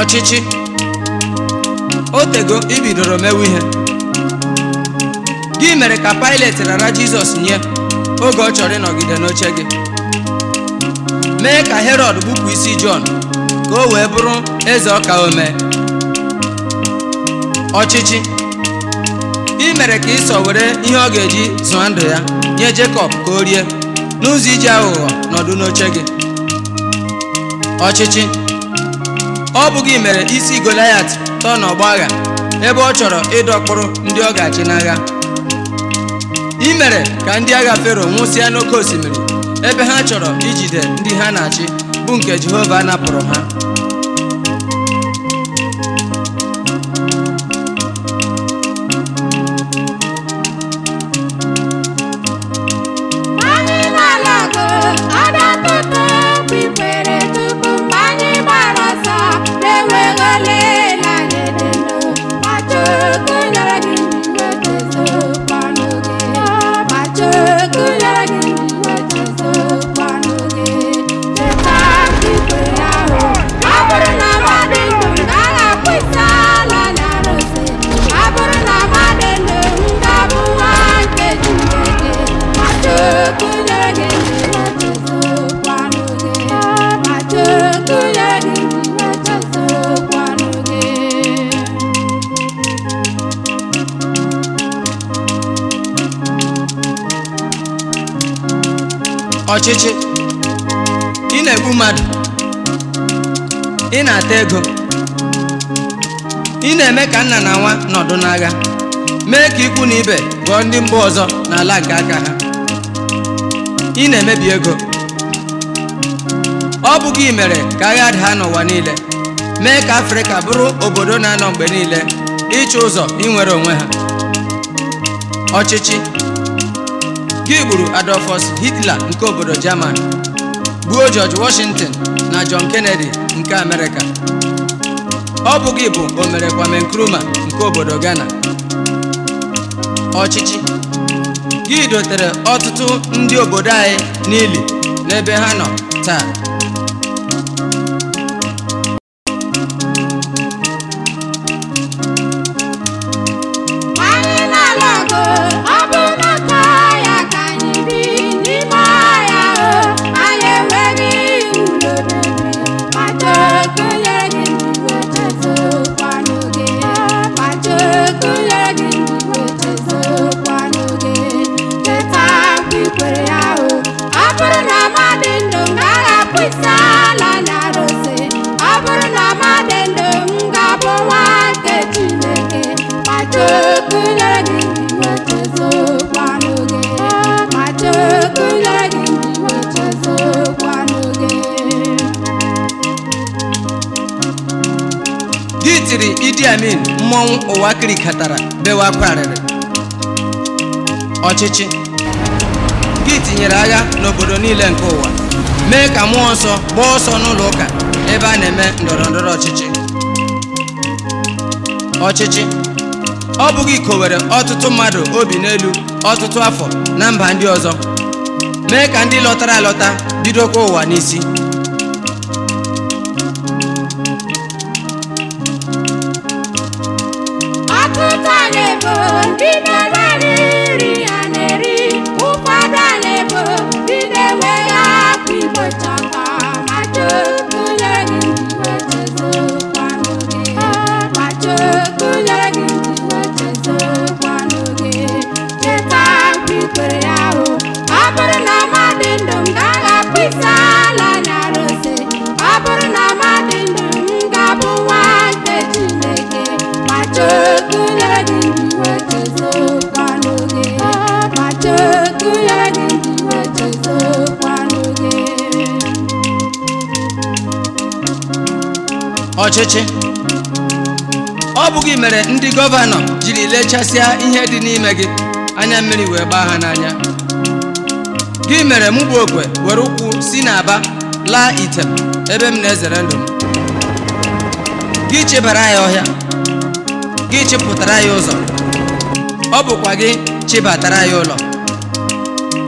ọchịchị o tego ibidoro mewe ihe gị mere ka Pilet rara Jizọs nye oge ọ chọrọ ịnọgide n'oche gị mee ka herod bupụ isi Jọn ka o wee bụrụ eze ọka omee ọchịchị ị mere ka ịsọ were ihe ọ ga-eji zụọ ndụ ya nye Jekọb ka o rie n'ụzọ iji aghụghọ nọdụ n'oche gị ọchịchị ọ bụghị mere isi Goliath tọọ n'ọgba agha ebe ọ chọrọ ịdọkpụrụ ndị ọ ga-achị n'agha imere mere ka ndị agha Fero nwụsịa n'oké osimiri ebe ha chọrọ ijide ndị ha na-achị bụ nke Jehova napụrụ ha ọchịchị ị na-egbu mmadụ ị na-ata ego ị na-eme ka nna na nwa nọdụ n'agha mee ka ikwu na ibe gụọ ndị mba ọzọ n'ala nke aka ha ị na-emebi ego ọ bụghị gị mere ka agha daa n'ụwa niile mee ka afrịka bụrụ obodo na-anọ mgbe niile ịchụ ụzọ inwere onwe ha ọchịchị Gị gburu Adolfus Hitler nke obodo German gbuo George Washington na John Kennedy nke Amerịka ọ bụ gị bụ omere Kwame Nkrumah nke obodo Ghana ọchịchị gị dotere ọtụtụ ndị obodo anyị n'ili n'ebe ha nọ taa ndị amin mmọnwụ ụwa kirikatara bewa akwa arịrị ọchịchị gị tinyere agha n'obodo niile nke ụwa mee ka mmụọ nsọ gbaa ọsọ n'ụlọ ụka ebe a na-eme ndọrọ ndọrọ ọchịchị ọchịchị ọ bụghị ikowere ọtụtụ mmadụ obi n'elu ọtụtụ afọ na mba ndị ọzọ mee ka ndị lọtara alọta bidokwa ụwa n'isi ọchịchị ọ bụ gị mere ndị gọvanọ jiri lechasịa ihe dị n'ime gị anya mmiri wee gbaa ha n'anya gị mere mụ bụ okwe were ụkwụ si n'aba laa Item," ebe m na-ezere ndụ m gị chebara ya ọhịa gị chịpụtara ya ụzọ ọ bụkwa gị chịbatara ya ụlọ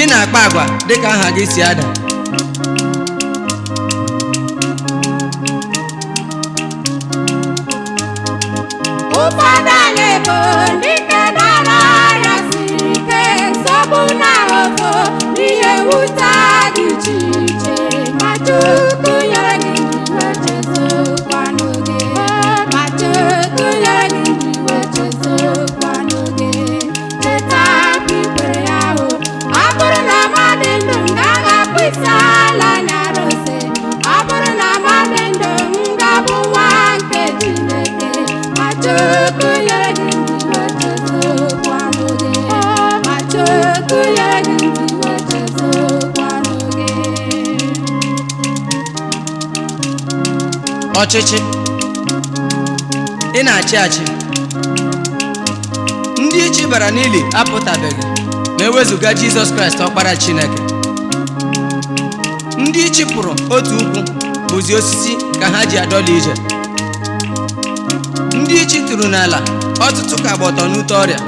ị na-akpa agwa dịka aha gị si ada fada le bondi ọchịchị ị na-achị achị ndị ichi bara n'ili apụtabeghị ma e wezụga jizọs kraịst ọkpara chineke ndị ichi pụrụ otu ukwu bụzi osisi ka ha ji adọla ije ndị ichi tụrụ n'ala ọtụtụ ka gba ọtọ n'ute ọrịa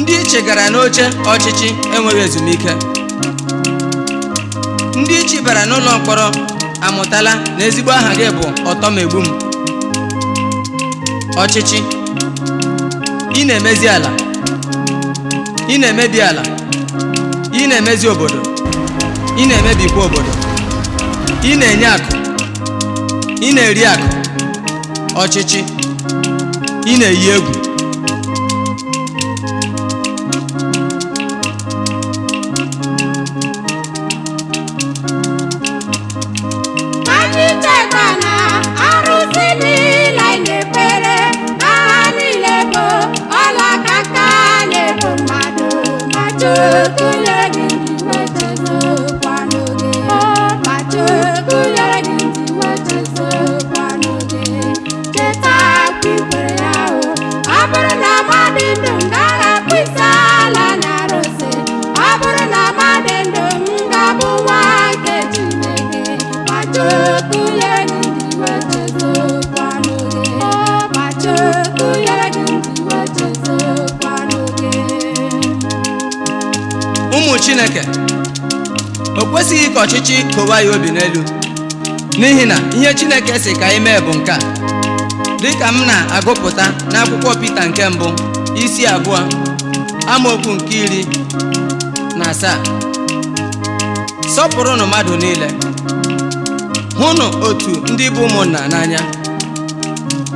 ndị ichi gara n'oche ọchịchị enweghị ezumike ndị ichi bara n'ụlọ mkpọrọ amụtala na ezigbo aha gị bụ ọtọmegbu m ọchịchị ị na-emezi ala ị na-emebi ala ị na-emezi obodo ị na-emebikwa obodo ị na-enye akụ ị na-eri akụ ọchịchị ị na-eyi egwu ka ọchịchị kowa ya obi n'elu n'ihi na ihe Chineke si ka anyị mee bụ nke a dịka m na-agụpụta n'akwụkwọ Pita nke mbụ isi abụọ amaokwu nke iri na asaa sọpụrụnụ mmadụ niile hụnụ otu ndị bụ ụmụnna n'anya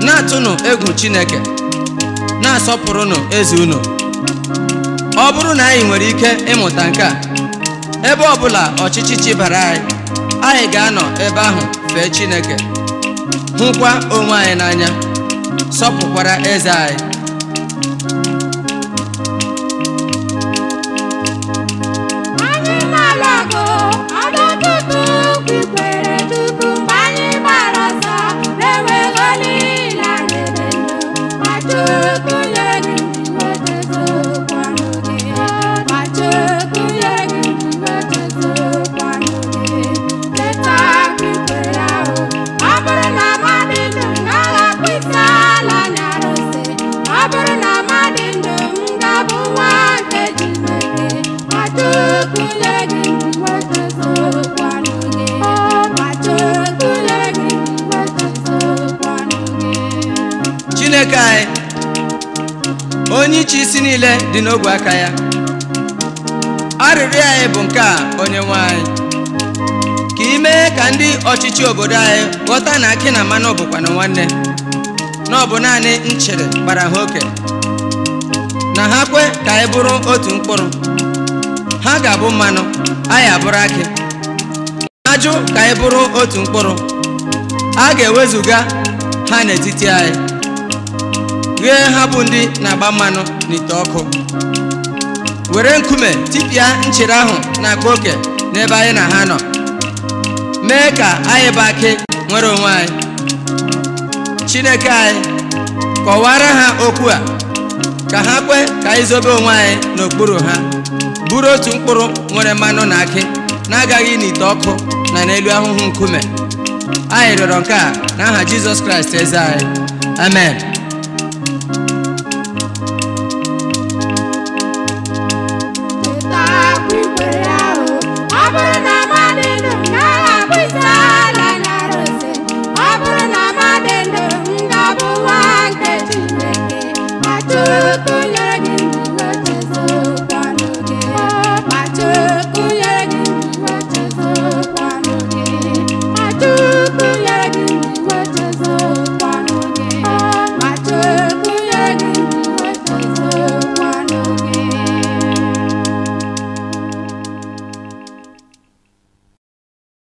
na-atụnụ egwu Chineke na-asọpụrụnụ eze unu ọ bụrụ na anyị nwere ike ịmụta nke a ebe ọbụla ọchịchị chibara anyị anyị ga-anọ ebe ahụ fee Chineke hụkwa onwe anyị n'anya sọpụkwara eze anyị chineke anyị onye iche isi niile dị n'ogwe aka ya arịrịọ anyị bụ nke a onye nwe anyị ka ị mee ka ndị ọchịchị obodo anyị ghọta na akị na mmanụ na nwanne na ọ bụ naanị nchere gbara ha oke na ha kwe ka anyị bụrụ otu mkpụrụ ha ga-abụ mmanụ anyị abụrụ akị ajụ ka anyị bụrụ otu mkpụrụ a ga-ewezuga ha n'etiti anyị rie ha bụ ndị na-agba mmanụ n'ite ọkụ were nkume tipịa nchere ahụ na agba oke n'ebe anyị na ha nọ mee ka anyị bụ akị nwere onwe anyị chineke anyị kọwara ha okwu a ka ha kwe ka anyị zobe onwe anyị n'okpuru ha bụrụ otu mkpụrụ nwere mmanụ na akị na-agaghị n'ite ọkụ na n'elu ahụhụ nkume anyị rịọrọ nke a n'aha Jizọs Kraịst eze anyị amen